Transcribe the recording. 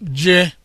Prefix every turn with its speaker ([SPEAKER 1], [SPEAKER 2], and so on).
[SPEAKER 1] je